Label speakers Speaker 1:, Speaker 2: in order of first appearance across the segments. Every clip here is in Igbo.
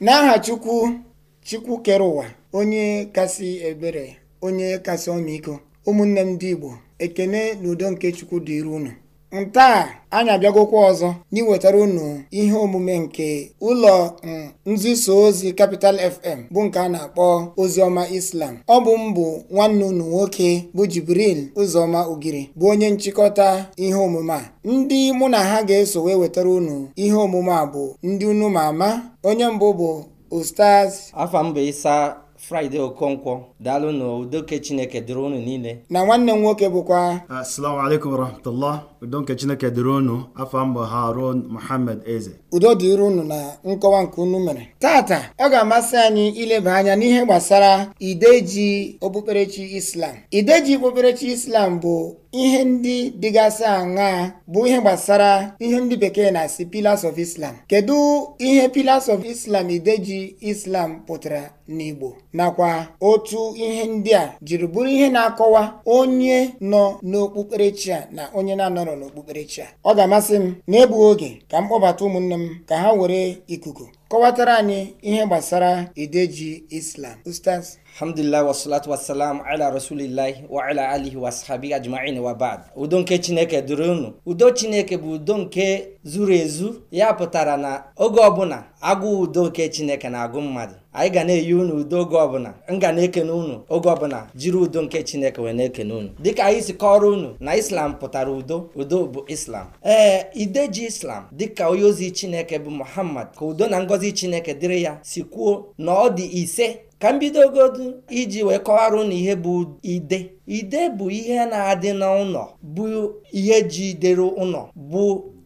Speaker 1: n'aha chukwu chukwu kere ụwa onye kasị ebere onye kasị ọmịiko ụmụnne m ndị igbo ekene na udo nke chukwu dịrị unu ntaa anyị abịagokwa ọzọ n'iwetara unu ihe omume nke ụlọ um, nzuso ozi kapital FM bụ nke a na-akpọ oziọma Islam ọ bụ mbụ nwanne unu nwoke bụ Jibril Ụzọma Ogiri bụ onye nchịkọta ihe omume a ndị mụ na ha ga-eso wee wetara unu ihe omume a bụ ndị unu ma ama onye mbụ bụ Ustaz
Speaker 2: afam Fraịde Okonkwo daalụ na udoke Chineke dịrị unu niile
Speaker 3: na nwanne m nwoke bụkwa assalamu alaikum warahmatullah udoke Chineke dịrị unu afọ ha Harun Muhammad Eze udo dịrị unu na nkọwa nke unu
Speaker 1: mere tata ọ ga-amasị anyị ileba anya n'ihe gbasara ideji okpukperechi Islam ideji okpukperechi Islam bụ ihe ndị dịgasị aṅaa bụ ihe gbasara ihe ndị bekee na-asị pillars of islam kedu ihe pillars of islam ideji islam pụtara n'igbo nakwa otu ihe ndị a jiri bụrụ ihe na-akọwa onye nọ n'okpukperechi a na onye na-anọrọ n'okpukperechi a ọ ga-amasị m n'egbughị oge ka m kpọbata ụmụnne m ka ha were ikuku kọwatara anyị ihe gbasara ideji islam ustaz
Speaker 2: alhamdulillah wasalatu wasalam ala rasulillahi wa ala alihi wa sahabi ajma'in wa udo nke chineke dụrụ unu udo chineke bụ udo nke zuru ezu ya pụtara na oge ọbụla agụ udo nke chineke na-agụ mmadụ anyị ga na-eyi unu udo oge ọbụla m ga na-ekene unu oge ọbụla jiri udo nke chineke wee na-ekene unu dịka anyị si kọrọ unu na islam pụtara udo udo bụ islam ee ideji islam dịka onye ozi chineke bụ muhammad ka udo na ngozi chineke dịrị ya si kwuo na ọ dị ise ka m bidogodu iji wee kọwara na ihe bụ ide ide bụ ihe na-adị n'ụlọ bụ ihe ji dere ụlọ bụ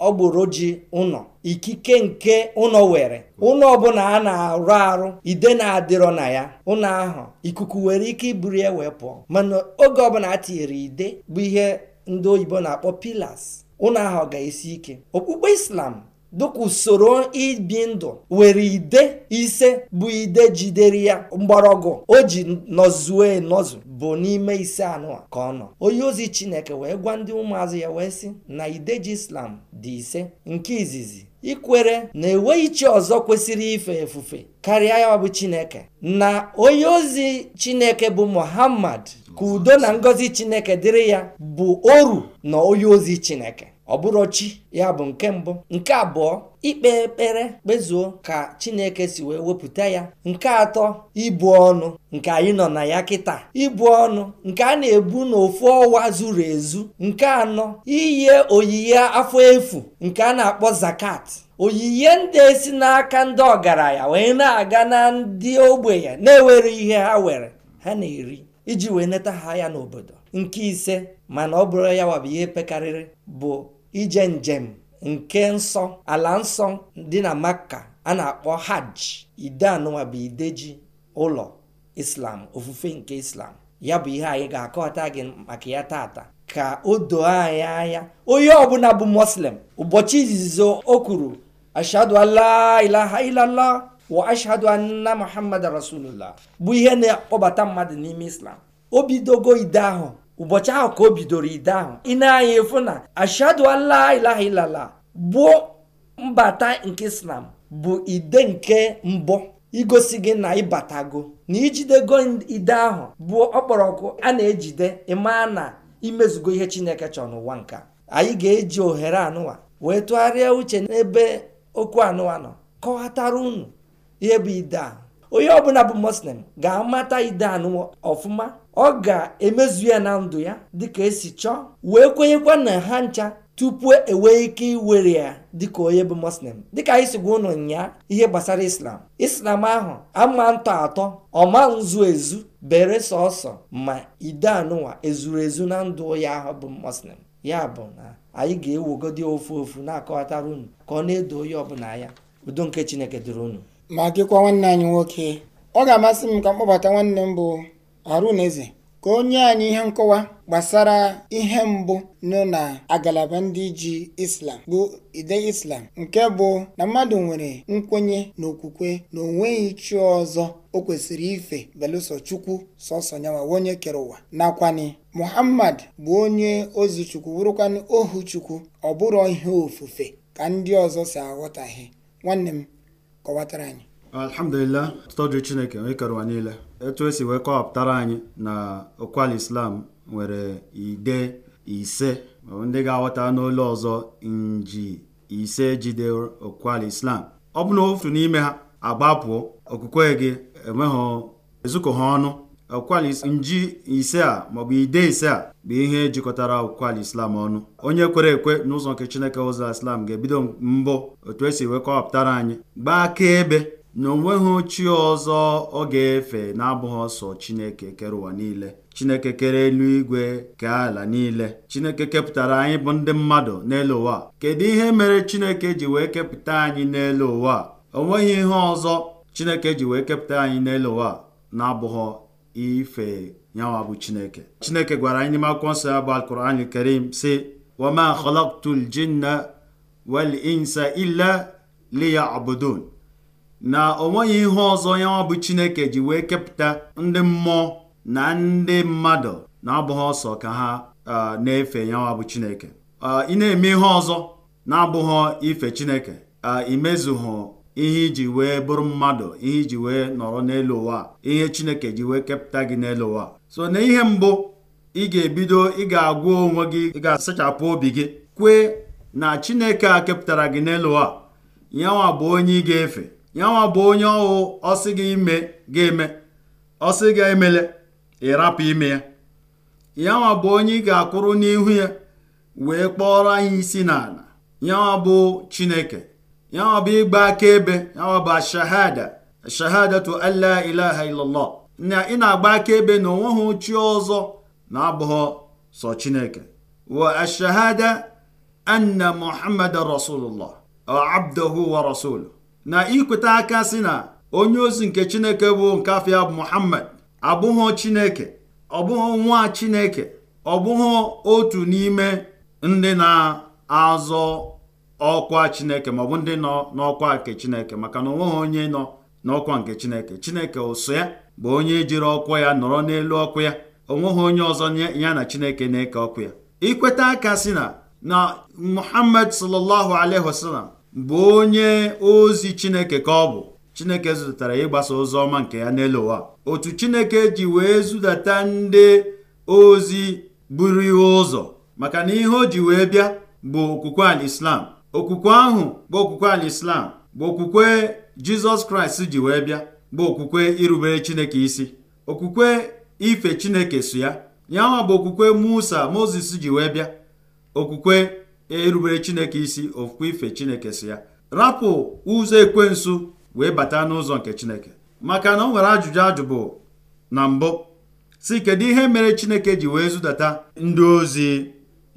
Speaker 2: ọgbụrụ ji ụlọ ikike nke ụlọ were ụlọ ọbụla a na-arụ arụ ide na-adịrọ na ya ụlọ ahụ ikuku nwere ike iburu ya wee pụọ mana oge ọbụla a tinyere ide bụ ihe ndị oyibo na-akpọ pilas. ụlọ ahụ ga-esi ike okpukpe islam dịka usoro ibi ndụ were ide ise bụ ide jidere ya mgbọrọgwụ o ji nọzuo nọzụ bụ n'ime ise anụ ka ọ nọ onye ozi chineke wee gwa ndị ụmụazụ ya wee sị na ideji islam dị ise nke izizi ikwere na enweghị chi ọzọ kwesịrị ife efufe karịa ya bụ chineke na onye ozi chineke bụ muhammad ka udo na ngọzi chineke dịrị ya bụ oru na onye ozi chineke ọ bụrụ chi ya bụ nke mbụ nke abụọ ikpe ekpere kpezuo ka chineke si wee wepụta ya nke atọ ibu ọnụ nke anyị nọ na ya kịta ibu ọnụ nke a na-ebu n'ofu ọwa zuru ezu nke anọ iyi oyiye afọ efu nke a na-akpọ zakat oyiye ndị esi n'aka ndị ọgaranya wee na-aga na ndị ogbenye na-ewere ihe ha were ha na-eri iji wee neta ha ya n'obodo nke ise mana ọ bụrụ ya wabụ ihe pekarịrị bụ ije njem nke nsọ ala nsọ dị na maka a na-akpọ hajj ide anụnwa bụ ideji ụlọ islam ofufe nke islam ya bụ ihe anyị ga-akọta gị maka ya tata ka o doo anyị anya onye ọbụla bụ muslim ụbọchị izizi o kwuru ashadu an ilala wa ashhadu anna muhammad rasulullah bụ ihe na-akpọbata mmadụ n'ime islam o bidogo ide ahụ ụbọchị ahụ ka o bidoro ide ahụ ị na efu na ashadu ala ilaha ilala bụ mbata nke islam bụ ide nke mbụ igosi gị na ịbatago na ijidego ide ahụ bụ ọkpọrọkụ a na-ejide ịmaa na imezugo ihe chineke chọrọ n'ụwa nka anyị ga-eji ohere anụwa wee tụgharịa uche n'ebe okwu anụwa nọ kọwatara unu ihe bụ ide a onye ọbụla bụ muslim ga-amata idanụ ọfụma ọ ga-emezu ya na ndụ ya dịka esi chọọ wee kwenyekwa na ha ncha tupu enwee ike iwere ya dịka onye bụ muslim dịka anyị si gwa ụnụ nyaa ihe gbasara islam islam ahụ ama ntọ atọ ọma nzu ezu bere sọsọ ma idanụwa ezuru ezu na ndụ ya ahụ bụ muslim ya bụ na anyị ga-ewegodi ofu ofu na-akọwatara unu ka ọ na-edo onye ọbụla ya udo nke chineke dịrị unu ma
Speaker 1: gịkwa nwanne anyị nwoke ọ ga-amasị m ka m kpọbata nwanne m bụ arụneze ka onye anyị ihe nkọwa gbasara ihe mbụ nọ na agalaba ndị ji Islam bụ ide Islam nke bụ na mmadụ nwere nkwenye na okwukwe na onweghị chi ọzọ o kwesịrị ife belụsọ Chukwu sọsọ nyawa onye kere ụwa nakwani Muhammad bụ onye ozi Chukwu bụrụkwanụ ohu Chukwu ọ bụrọ ihe ofufe ka ndị ọzọ si aghọtaghị nwanne m kọwatara anyị
Speaker 3: alhamdulillah tụtọju chineke ịkere ụwa niile etu esi wee kọwapụtara anyị na okwal islam nwere ide ise ndị ga-aghọta n'ụlọ ọzọ nji ise jide okwal islam ọ bụ na ofu n'ime ha agbapụ okwukwe gị enweghị ezukọ ha ọnụ akwụkwọ nji ise a maọbụ ide ise a bụ ihe jikọtara akwụkwọ islam ọnụ onye kwere ekwe n'ụzọ nke chineke ụzọ islam ga-ebido mbụ otu esi wee kọwapụtara anyị gbaa akaebe na onweghị chi ọzọ ọ ga-efe na-abụghị ọsọ chineke kere ụwa niile chineke kere eluigwe kee ala niile chineke kepụtara anyị bụ ndị mmadụ n'elu ụwa kedu ihe mere chineke ji wee kepụta anyị n'elu ụwa onweghị ihe ọzọ chineke ji wee kepụta anyị n'elu ụwa na-abụghị ife nyawa bụ chineke chineke gwara anyị n'ime akwụkwọ nsọ ya bụ alkuran karim si wama khalaqtu ljinna wal insa illa liyabudun na o nweghị ihe ọzọ nyawa bụ chineke ji wee kepụta ndị mmụọ na ndị mmadụ na-abụghị ọsọ ka ha na-efe nyawa bụ chineke ị na-eme ihe ọzọ na-abụghị ife chineke imezuhụ ihe iji wee bụrụ mmadụ ihe iji wee nọrọ n'elu ụwa ihe chineke ji wee kepụta gị n'elu ụwa so na ihe mbụ ị ga-ebido ị ga-agwa onwe gị ị ga-asachapụ obi gị kwee na chineke a kepụtara gị n'elu ụwa yanwa bụ onye ị ga-efe yanwa bụ onye ọhụụ ọsị gị ime ga-eme ọsị gị emele ịrapụ ime ya yanwa bụ onye ị ga-akwụrụ n'ihu ya wee kpọrọ anyị isi n'ala yanwa bụ chineke yanwa bụ ịgba akaebe yanwa bụ ashahada ashahadatu alla ilaha illallah na ị na-agba akaebe na onweghị chi ọzọ na-abụghị sọ chineke wa ashahada anna muhammad rasulullah abduhu wa rasulu na ikweta aka si na onye ozi nke chineke bụ nke afọ muhammad abụghị chineke ọ nwa chineke ọ otu n'ime ndị na-azọ ọkwa chineke maọbụ ndị nọ n'ọkwa nke chineke maka na onweghị onye nọ n'ọkwa nke chineke chineke ụsụ ya bụ onye jiri ọkwa ya nọrọ n'elu ọkụ ya onweghị onye ọzọ ya na chineke na-eke ọkụ ya ikweta aka si na na muhammad sallallahu alaihi wasallam bụ onye ozi chineke ka ọ bụ chineke zụtara ịgbasa ozi ọma nke ya n'elu ụwa otu chineke ji wee zụdata ndị ozi buru ihe ụzọ maka na ihe o ji wee bịa bụ okwukwe al islam okwukwe ahụ bụ okwukwe alislam bụ okwukwe jizọs kraịst ji wee bịa bụ okwukwe irubere chineke isi okwukwe ife chineke so ya yanwa bụ okwukwe musa moses ji wee bịa okwukwe erubere chineke isi okwukwe ife chineke so ya rapụ ụzọ ekwensu wee bata n'ụzọ nke chineke maka na o nwere ajụjụ ajụ na mbụ si kedu ihe mere chineke ji wee zụdata ndị ozi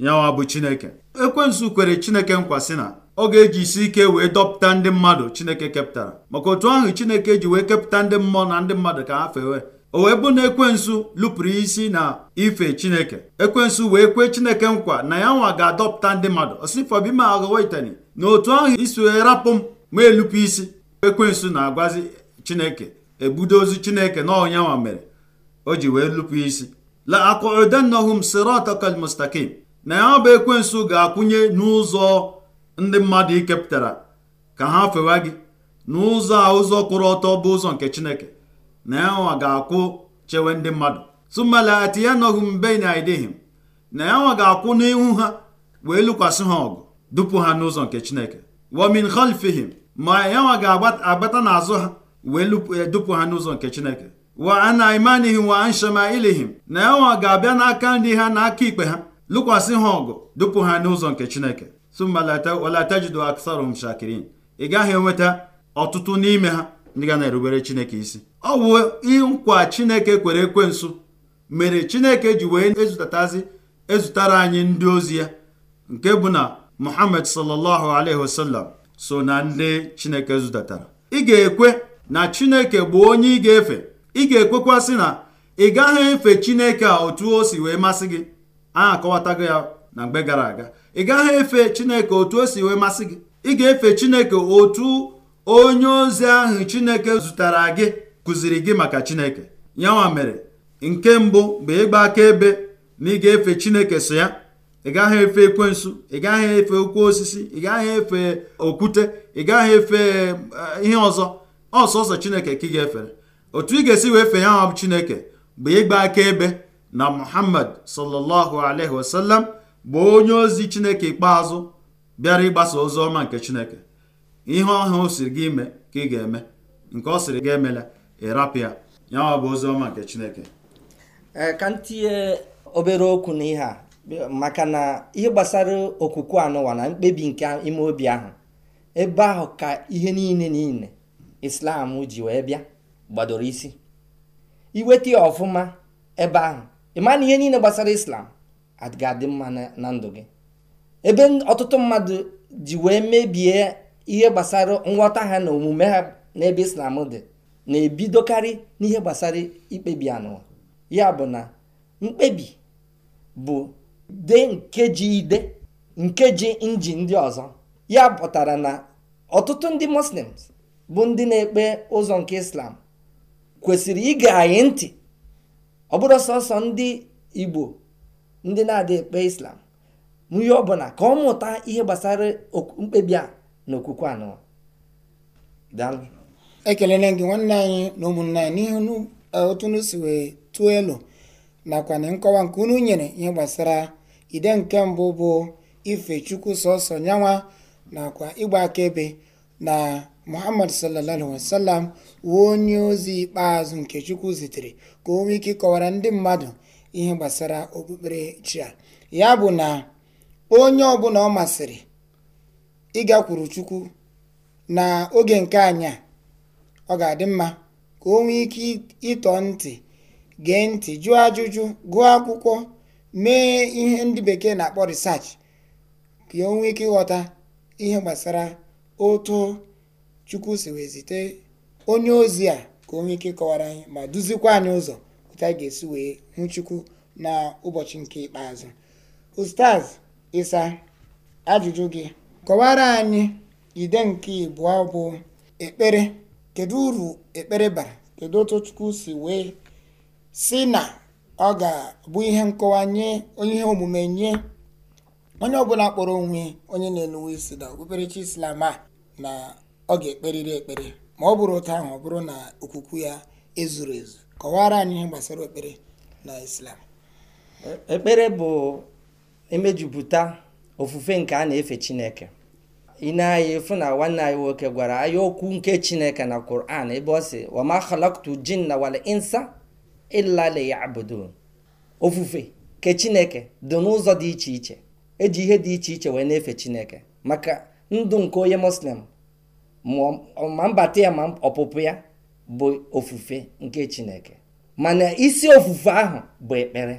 Speaker 3: yanwa bụ chineke ekwensụ kwere chineke nkwa si na ọ ga-eji isi ike wee dọpụta ndị mmadụ chineke kepụtara maka otu ahụ chineke ji wee kepụta ndị mmụọ na ndị mmadụ ka ha fewe o wee bụ na ekwensụ lụpụrụ isi na ife chineke ekwensụ wee kwee chineke nkwa na ya nwa ga-adọpụta ndị mmadụ osifọbima aghọwaitani na otu ahụ isi wee rapụ m ma elupụ isi ekwensụ na-agwazi chineke ebudo ozu chineke na ọnyanwa mere o ji wee lụpụ isi la akụdanahum siratakal mustakim na ya bụ ekwensu ga-akwụnye n'ụzọ ndị mmadụ ikepụtara ka ha fewa gị n'ụzọ a ụzọ kwụrụ ọtọ bụ ụzọ nke chineke na yanwa ga-akwụ chewe ndị mmadụ tumalati ya nọghị mbe na idihim na yanwa ga-akwụ n'ihu ha wee lụkwasị ha ọgụ dupu ha n'ụzọ nke chineke wamin khalfihim ma yanwa ga-agbata n'azụ ha wee e, dupu ha n'ụzọ nke chineke wa ana imanihim wa an shamailihim na yanwa ga-abịa n'aka ndị ha na ikpe ha lụkwasị ha ọgụ dupụ ha n'ụzọ nke chineke sumalata aksarum shakirin ị gaghị enweta ọtụtụ n'ime ha ndị ga na-erubere chineke isi ọ bụ nkwa chineke kwere ekwe nso mere chineke ji wee ezụtatazi ezutara anyị ndị ozi ya nke bụ na muhammad sallallahu alaihi wasallam so na ndị chineke zụtatara ị ga-ekwe na chineke bụ onye ị ga-efe ị ga-ekwekwasị na ị gaghị efe chineke a otu o si wee masị gị a akọwatago ya na mgbe gara aga ị gaghị efe chineke otu o si wee masị gị ị ga-efe chineke otu onye ozi ahụ chineke zụtara gị kụziri gị maka chineke yanwa mere nke mbụ mgbe ịgba akaebe na ị ga-efe chineke so ya ị gaghị efe ekwensu ị gaghị efe okwu osisi ị gaghị efe okwute ị gaghị efe eh, ihe ọzọ ọsọsọ chineke ka ị ga-efere otu ị ga-esi wee fee ya nwa chineke bụ ịgba akaebe na muhammad sallallahu alaihi wasallam bụ onye ozi chineke ikpeazụ bịara ịgbasa ozi ọma nke chineke ihe ọhụụ siri gị ime ka ị ga-eme nke ọ sịrị gị emela ya ya bụ ozi ọma nke chineke
Speaker 2: ka ntinye obere okwu n'ihe a maka na ihe gbasara okwukwe anụwa na mkpebi nke ime obi ahụ ebe ahụ ka ihe niile niile islam ji wee bịa gbadoro isi iweta ọfụma ebe ahụ ị na ihe niile gbasara islam ga-adị mma na ndụ gị ebe ọtụtụ mmadụ ji wee mebie ihe gbasara nghọta ha na omume ha n'ebe islam dị na-ebidokarị n'ihe gbasara ikpebi anụwa ya bụ na mkpebi bụ de nkeji ide nkeji nji ndị ọzọ ya pụtara na ọtụtụ ndị muslims bụ ndị na-ekpe ụzọ nke islam kwesịrị ige anyị ntị ọ bụrụ sọsọ ndị igbo ndị na-adịghị ekpe islam ihe ọbụla ka ọ mụta ihe gbasara
Speaker 1: mkpebi a na okwukwe anọ ekelele gị nwanne anyị na ụmụnne anyị n'ihu e, otu unu si wee tụọ elu nakwa na nkọwa nke unu nyere ihe gbasara ide nke mbụ bụ ife chukwu sọsọ nyanwa nakwa ịgba akaebe na muhammad sallallahu wasallam wee onye ozi ikpeazụ nke chukwu zitere ka o nwee ike ịkọwara ndị mmadụ ihe gbasara okpukpere chi a ya bụ na onye ọbụla ọ masịrị ịgakwuru chukwu na oge nke anya ọ ga-adị mma ka o nwee ike ịtọ ntị gee ntị jụọ ajụjụ gụọ akwụkwọ mee ihe ndị bekee na-akpọ research ka o nwee ike ịghọta ihe gbasara otu chukwu si wee zite onye ozi a ka onye ike kọwara anyị ma duzikwa anyị ụzọ otu anyị ga-esi wee hụ chukwu na ụbọchị nke ikpeazụ ustaz ịsa ajụjụ gị kọwara anyị ide nke ịbụọ bụ ekpere kedu uru ekpere bara kedu otu chukwu si wee si na ọ ga-abụ ihe nkọwa nye onye ihe omume nye onye ọbụla kpọrọ onwe onye na-enuwe isi na okpukperechi islam a na ọ ga-ekperịrị ekpere ma ọ bụrụ otu ahụ ọ bụrụ na okwukwu ya ezuru ezu kọwara anyị ihe gbasara ekpere na islam
Speaker 2: ekpere bụ emejupụta ofufe nke a na-efe chineke ị na-anya efu na nwanne anyị nwoke gwara anyị okwu nke chineke na Quran ebe ọ sị wama khalaqtu jinna wal insa ya abodo ofufe ke chineke dị n'ụzọ dị iche iche eji ihe dị iche iche wee na-efe chineke maka ndụ nke onye muslim ma mbata ya ma ọpụpụ ya bụ ofufe nke chineke mana isi ofufe ahụ bụ ekpere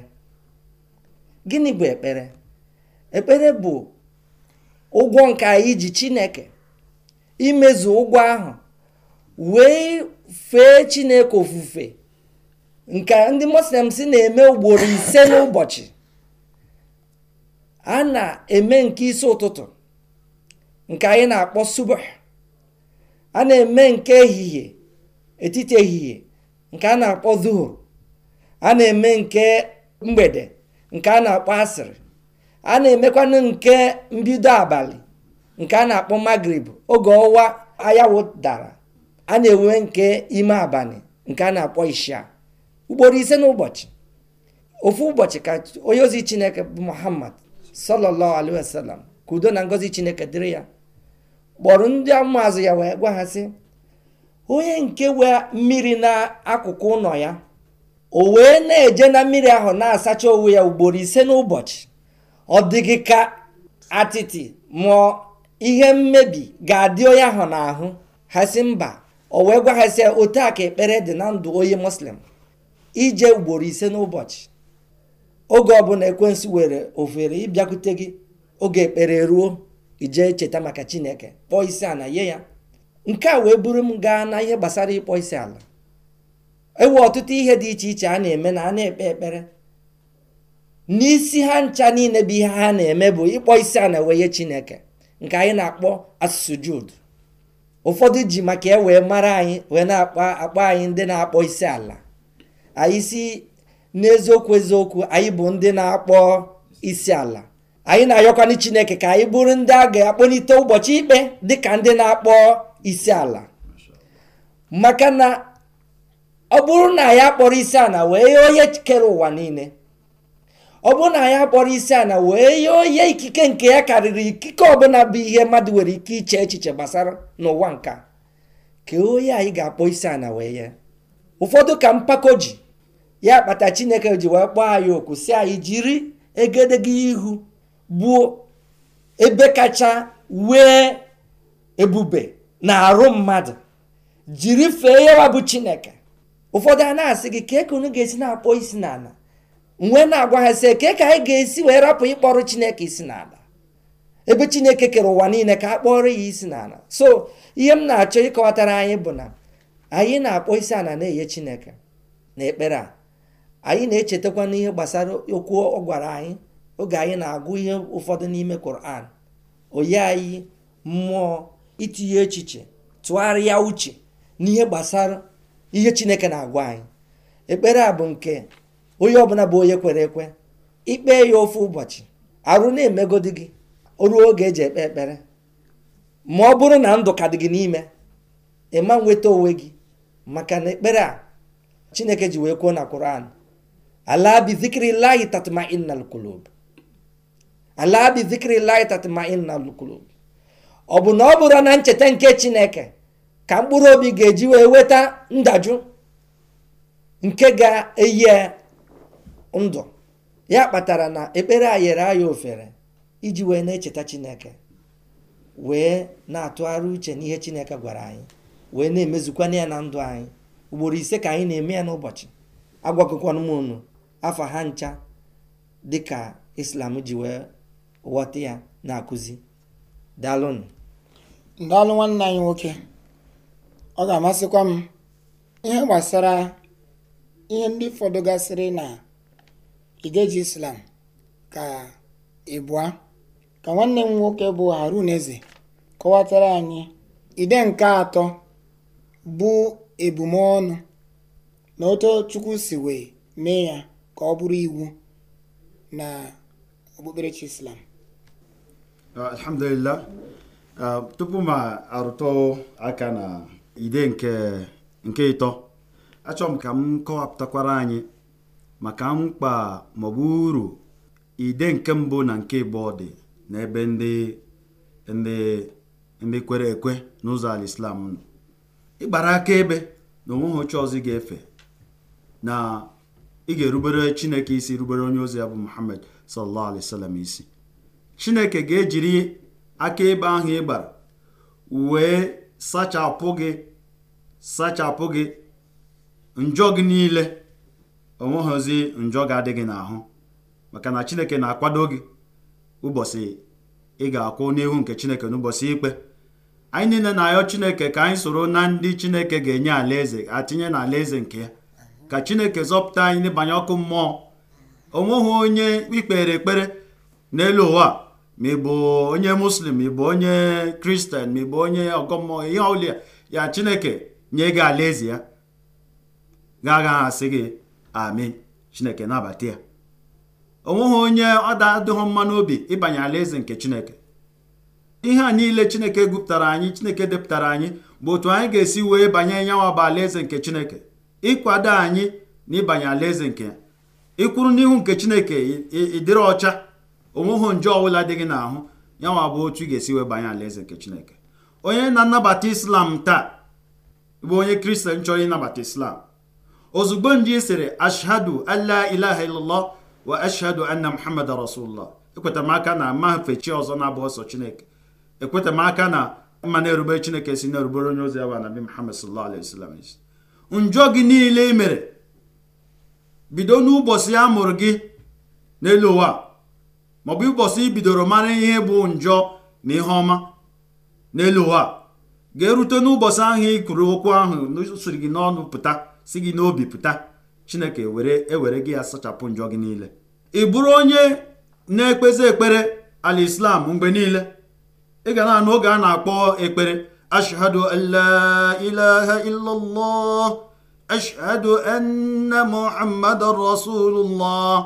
Speaker 2: gịnị bụ ekpere ekpere bụ ụgwọ nke anyị ji chineke imezu ụgwọ ahụ wee fee chineke ofufe nke ndị muslims na-eme ugboro ise n'ụbọchị a na-eme nke isi ụtụtụ nke anyị na-akpọ subah a na-eme nke ehihie etiti ehihie nke a na-akpọ zuhur a na-eme nke mgbede nke a na-akpọ asịrị a na-emekwanụ nke mbido abalị nke a na-akpọ magrib oge ọwa ayawụ dara a na-enwe nke ime abalị nke a na-akpọ isha ugboro ise n'ụbọchị ofu ụbọchị ka onye ozi chineke bụ muhammad sọlọlọ alaihi ka udo na ngozi chineke dịrị ya kpọrọ ndị azụ ya wee gwa ha sị onye nke wee mmiri n'akụkụ ụlọ ya o wee na-eje na mmiri ahụ na-asacha onwe ya ugboro ise n'ụbọchị ọ dịghị ka atịtị mụọ ihe mmebi ga-adị onye ahụ n'ahụ ha sị mba o wee gwa ha sị otu a ka ekpere dị na ndụ onye muslim ije ugboro ise n'ụbọchị oge ọbụla ekwensu were ofere ịbịakwute gị oge ekpere ruo ijee cheta maka chineke kpọọ isi ala nye ya nke a wee buru m gaa na ihe gbasara ịkpọ isi ala ewe ọtụtụ ihe dị iche iche a na-eme na a na-ekpe ekpere n'isi ha ncha niile bụ ihe ha na-eme bụ ịkpọ isi ala wee nye chineke nke anyị na-akpọ asụsụ Jud. ụfọdụ ji maka e wee mara anyị wee na-akpọ akpọ anyị ndị na-akpọ isi ala anyị si n'eziokwu eziokwu anyị bụ ndị na-akpọ isi ala anyị na-ayọkwanụ chineke ka anyị bụrụ ndị a ga-akpọlite ụbọchị ikpe dịka ndị na-akpọ isi ala maka na ọ bụrụ na anyị akpọrọ isi ala wee ye onye kere ụwa niile ọ bụrụ na anyị akpọrọ isi ala wee ye onye ikike nke ya karịrị ikike ọbụla bụ ihe mmadụ nwere ike iche echiche gbasara n'ụwa nka ka onye anyị ga-akpọ isi ala wee ye ụfọdụ ka mpako ji ya kpata chineke ji wee kpọọ anyị oku si anyị jiri egedege ihu bụ ebe kacha wee ebube na arụ mmadụ jiri fee yawa bụ chineke ụfọdụ a na-asị gị kee ka ga-esi na-akpọ isi n'ala nwee na-agwa ha sị kee ka anyị ga-esi wee rapụ ịkpọrọ chineke isi n'ala ebe chineke kere ụwa niile ka a kpọrọ ya isi n'ala so ihe m na-achọ ịkọwatara anyị bụ na anyị na-akpọ isi ala na-enye chineke na ekpere a anyị na-echetakwa n'ihe gbasara okwu ọ gwara anyị oge anyị na-agụ ihe ụfọdụ n'ime Quran oyi anyị mmụọ itinye echiche tụgharịa uche n'ihe gbasara ihe Chineke na-agwa anyị ekpere a bụ nke onye ọbụla bụ onye kwere ekwe ikpe ya ofu ụbọchị arụ na-emegodi gị oruo oge eji ekpe ekpere ma ọ bụrụ na ndụ ka dị gị n'ime ịma nweta onwe gị maka na ekpere a Chineke ji wee kwuo na Quran ala bi zikrillahi innal qulub ala bi zikri lahi tatma'inna al-qulub ọ bụ na ọ bụrụ na ncheta nke chineke ka mkpụrụ obi ga-eji wee weta ndajụ nke ga-eyi ndụ ya kpatara na ekpere a yere ofere iji wee na-echeta chineke wee na-atụgharị uche n'ihe chineke gwara anyị wee na-emezukwana ya na ndụ anyị ugboro ise ka anyị na-eme ya n'ụbọchị agwakọkwana m unu afọ ha ncha dịka islam ji wee ghọta ya na-akụzi daalụnụ
Speaker 1: daalụ nwanne anyị nwoke ọ ga-amasịkwa m ihe gbasara ihe ndị fọdụ gasịrị na igeji islam ka ịbụa ka nwanne m nwoke bụ harun eze kọwatara anyị ide nke atọ bụ ebumọnụ na otu chukwu si wee mee ya ka ọ bụrụ iwu na okpukperechi islam
Speaker 3: Uh, alhamdulillah uh, tupu ma arụtụ aka na ide nke nke ịtọ achọrọ m ka m kọwapụtakwara anyị maka mkpa maọbụ uru ide nke mbụ na nke ịbụọ dị n'ebe ndị ndị ndị kwere ekwe n'ụzọ ala islam nọ ịgbara akaebe na onweghị oche ọzọ ị ga-efe na ị ga-erubere chineke isi rubere onye ozi ya bụ muhammad sallallahu alaihi wasallam isi chineke ga-ejiri akaebe ahụ ị gbara wee sachapụ gị sachapụ gị njọ gị niile onweghịzi njọ ga-adị gị n'ahụ maka na chineke na-akwado gị ụbọchị ị ga-akwụ n'ihu nke chineke n'ụbọchị ikpe anyị niile na-ayọ chineke ka anyị soro na ndị chineke ga-enye alaeze atinye na alaeze nke ya ka chineke zọpụta anyị n'ịbanye ọkụ mmụọ onweghị onye ikpere ekpere n'elu ụwa ma ị bụ onye muslim ịbụ onye kristian ma ị bụ onye ọgọ ihe ọbụla ya chineke nye gị alaeze ya ga-agaghị asị gị ami chineke nabata ya onweghị onye ọ da-adịghị mma n'obi ịbanye alaeze nke chineke ihe a niile chineke gụpụtara anyị chineke depụtara anyị bụ otu anyị ga-esi wee banye nyanwa bụ alaeze nke chineke ịkwado anyị na ịbanye alaeze nke ya ịkwụrụ n'ihu nke chineke ịdịrị ọcha onweghị nje ọbụla dị gị n'ahụ ya nwa bụ otu ị ga-esi wee banye alaeze nke chineke onye na-anabata islam taa bụ onye kristian chọrọ ịnabata islam ozugbo nje sịrị ashhadu alla ilaha illallah wa ashhadu anna muhammad rasulullah ekwetamaka na mafe chi ọzọ na-abụ ọsọ chineke ekwetamaka na mma na-erubere chineke si na-erubere onye ozi awa nabi muhammad sallallahu alaihi njọ gị niile i mere bido n'ụbọchị a mụrụ gị n'elu ụwa maọbụ ịbọsị ibidoro mara ihe bụ njọ na ihe ọma n'elu ụwa ga-erute n'ụbọchị ahụ ịkụrụ okwu ahụ siri gị n'ọnụ pụta si gị n'obi pụta chineke were ewere gị ya sachapụ njọ gị niile ị bụrụ onye na-ekpezi ekpere ala islam mgbe niile ị ga na-anụ oge a na-akpọ ekpere ashhadu an la ilaha illallah ashhadu anna muhammadan rasulullah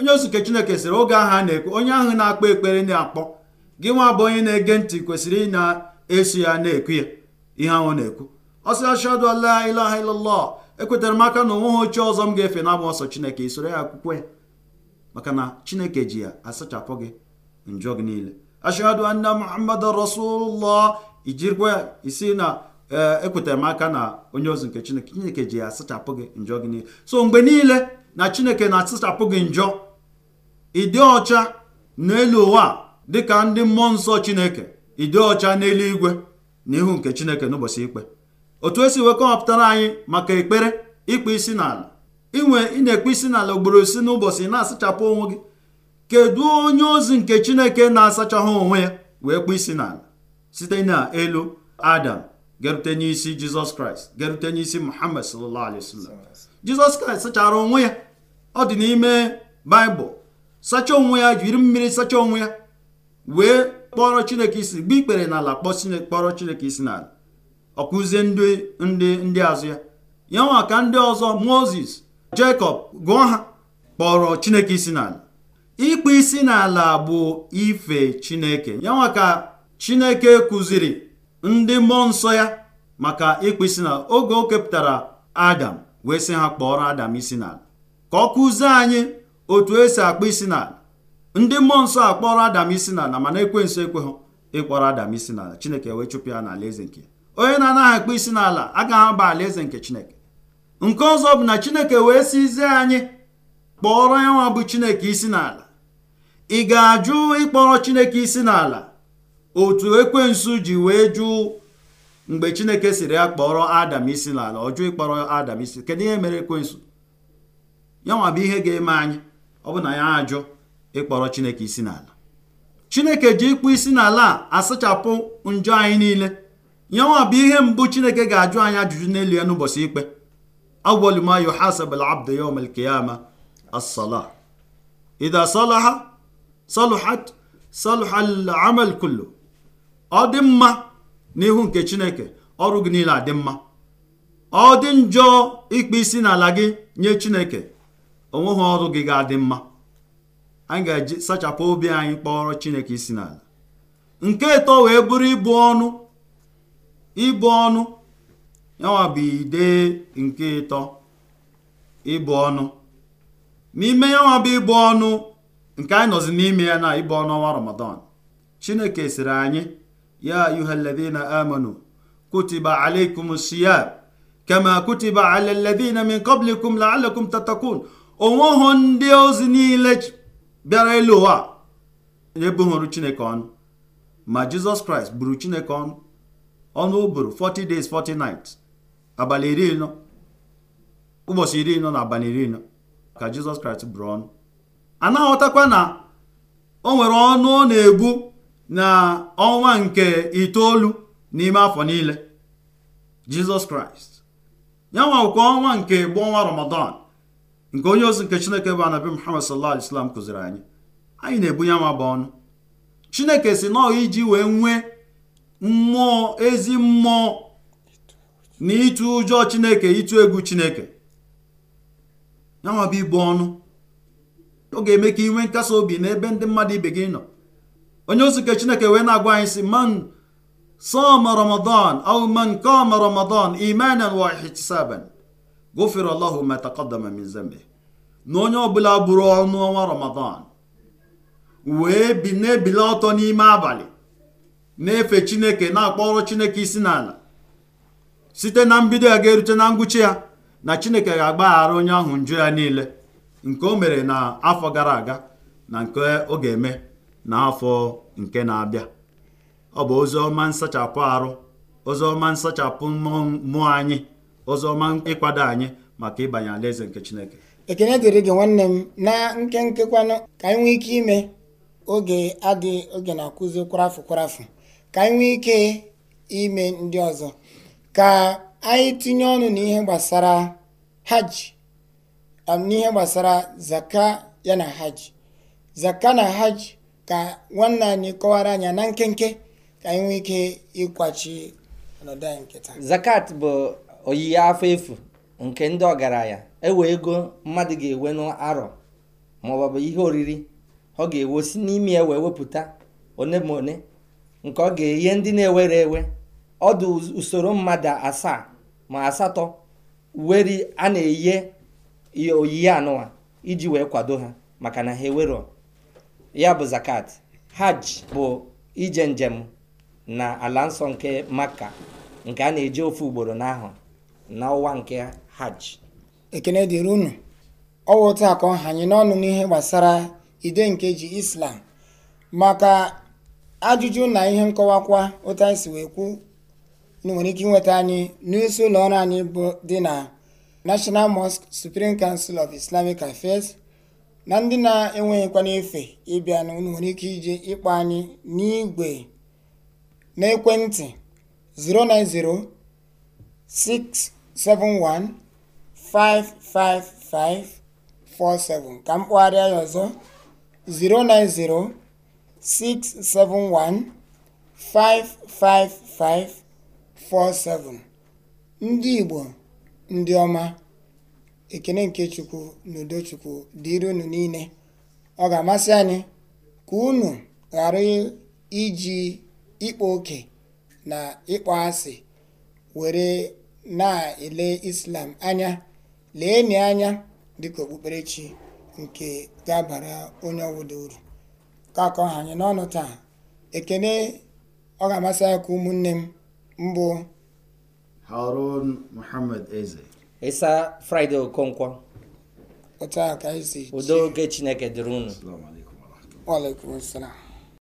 Speaker 3: onye ozuke chineke sịrị oge ahụ a na-ekpe onye ahụ na-akpọ ekpere na-akpọ gị nwa bụ onye na-ege ntị kwesịrị ị na-eso ya na-ekwu ya ihe ahụ na-ekwu ọ sị ashadu ala ilaha illallah ekwetara m aka na onwe ha ochie ọzọ m ga-efe na ọsọ chineke isoro ya akwụkwọ ya maka na chineke ji ya asachapụ gị njọ gị niile ashadu anna muhammad rasulullah ijirikwa ya isi na e, ekwetara m aka na onye ozi nke chineke chineke ji ya asachapụ gị njọ gị niile so mgbe niile na chineke na-asachapụ gị njọ ịdị ọcha n'elu ụwa dịka ndị mmụọ nsọ chineke ịdị ọcha n'eluigwe na ihu nke chineke n'ụbọchị ikpe otu esi wee kọwapụtara anyị maka ekpere ịkpa isi n'ala inwe ị na-ekpe isi n'ala ugboro isi n'ụbọchị na-asachapụ onwe gị kedu onye ozi nke chineke na-asachahụ onwe ya wee kpụ isi n'ala site na elu adam gerute n'isi jizọs kraịst gerute n'isi muhammad sallallahu alaihi wasallam jizọs kraịst sachara onwe ya ọ dị n'ime baịbụl sacha onwe ya jiri mmiri sacha onwe ya wee kpọrọ chineke isi gba ikpere n'ala kpọrọ chineke isi n'ala ọkụzie ndị ndị azụ ya ya nwa ka ndị ọzọ moses jacob gụọ ha kpọrọ chineke isi n'ala ịkpụ isi n'ala bụ ife chineke ya nwa ka chineke kụziri ndị mmụọ nsọ ya maka ịkpụ isi n'ala oge o kepụtara adam wee sị ha kpọrọ adam isi n'ala ka ọ kụzie anyị otu esi akpọ isi n'ala ndị mmụọ nsọ akpọrọ adam isi n'ala mana ekwe hụ ịkpọrọ adam isi n'ala chineke wee chụpụ ya n'ala eze nke onye na-anaghị akpọ isi n'ala agaghị aba ala eze nke chineke nke ọzọ bụ na chineke wee sizie anyị kpọrọ ya nwa bụ chineke isi n'ala ị ga-ajụ ịkpọrọ chineke isi n'ala otu ekwensu ji wee jụ mgbe chineke siri ya kpọrọ adam isi n'ala ọ jụ ịkpọrọ adam isi kedu ihe mere ekwensu ya nwa bụ ihe ga-eme anyị ọ bụ na ya ajụ ịkpọrọ chineke isi n'ala chineke ji ịkpụ isi n'ala a asachapụ njọ anyị niile nyanwa bụ ihe mbụ chineke ga-ajụ anyị ajụjụ n'elu ya n'ụbọchị ikpe awwalu ma yuhasabul abdu asala al-qiyama as ọ dị mma n'ihu nke chineke ọrụ gị niile adị mma ọ dị njọ ịkpụ isi n'ala gị nye chineke onweghị ọrụ gị ga-adị mma anyị ga-eji sachapụ obi anyị kpọrọ chineke isi n'ala nke eto wee bụrụ ịbụ ọnụ ịbụ ọnụ yanwa bụ ide nke ịtọ ịbụ ọnụ n'ime yanwa bụ ịbụ ọnụ nke anyị nọzi n'ime ya na ịbụ ọnụ ọnwa ramadan chineke sịrị anyị ya ayuhaladina amanu kutiba alaikum siyam kama kutiba ala alladina min qablikum la'allakum tatakun onweghị ndị ozi niile bịara elu ụwa ebughịrụ chineke ọnụ ma jizọs kraịst buru chineke ọnụ ọnụ ụbụrụ 40 days 40 nights abalị iri nọ ụbọchị iri nọ na abalị iri nọ ka jizọs kraịst buru ọnụ anaghị na o nwere ọnụ ọ na-egbu na ọnwa nke itoolu n'ime afọ niile jizọs kraịst ya nwakwa ọnwa nke bụ ọnwa ramadan nke onye ozi nke chineke bụ anabi muhammad sallallahu alaihi kụziri anyị anyị na-ebunye ama bụ ọnụ chineke si nọọ iji wee nwee mmụọ ezi mmụọ na ịtụ ụjọ chineke ịtụ egwu chineke yanwa ibu ọnụ ọ ga-eme ka inwe nkasi obi n'ebe ndị mmadụ ibe gị nọ onye ozi nke chineke wee na-agwa anyị si man sọma ramadan au man kama ramadan imanan wa ihtisaban gụfere allahu ma taqaddama na onye ọbụla bụrụ ọnụ ọnwa ramadan wee bi na ọtọ n'ime abalị na-efe chineke na-akpọrọ chineke isi n'ala site na mbido ya ga-erute na ngwụcha ya na chineke ga-agbaghara onye ahụ njọ ya niile nke o mere na afọ gara aga na nke ọ ga-eme n'afọ nke na-abịa ọ bụ ozi ọma nsachapụ arụ ozi ọma nsachapụ mmụọ anyị ụzọ ọma ịkwado anyị maka ịbanye alaeze nke Chineke
Speaker 1: ekene dịrị gị nwanne m na nkenke ka anyị nwee ike ime oge adị oge na-akụzi kwarafụ kwarafụ ka anyị nwee ike ime ndị ọzọ ka anyị tinye ọnụ n'ihe gbasara hajj um, n'ihe gbasara zaka ya na hajj zaka na hajj ka nwanne anyị kọwara anya na nkenke ka anyị nwee ike ịkwachi ọnọdụ anyị nke
Speaker 2: taa zakat bụ oyiyi afọ efu nke ndị ọgaranya ewe ego mmadụ ga-ewe n'arọ maọbụ ihe oriri ọ ga-ewe si n'ime ya wepụta one ma one nke ọ ga-enye ndị na-ewere ewe ọdụ usoro mmadụ asaa ma asatọ weri a na-eye oyiyi anụwa iji wee kwado ha maka na ha ewero ya bụ zakat hajj bụ ije njem na ala nsọ nke maka nke a na-eje ofu ugboro n'ahụ n'ọwa
Speaker 1: nke hajj ekene dịrị unu ọwụ taa ka ọ anyị n'ọnụ n'ihe gbasara ide nke ji islam maka ajụjụ na ihe nkọwakwa otu anyị si wee kwu nwere ike inweta anyị n'isi ụlọ ọrụ anyị bụ dị na National Mosque Supreme Council of Islamic Affairs na ndị na-enweghịkwa n'efe ịbịa na nwere ike ije ịkpọ anyị n'igwe n'ekwentị 090 6 090655547 ka m anyị ya ọzọ 09067155547 ndị Igbo ndị ọma ekene nke Chukwu na udo Chukwu dịrị unu niile ọ ga-amasị anyị ka unu ghara iji ịkpa oke na ịkpọ asị were na-ele islam anya lee leenị anya dị dịka okpukperechi nke ga-abara onye ọwụda uru ka akọ ha anyị n'ọnụ taa ekene ọ ga-amasị ya ka ụmụnne m mbụ
Speaker 3: harun muhammad eze
Speaker 2: ịsa fraịde okonkwo otu oge chineke dịrị unu alaikum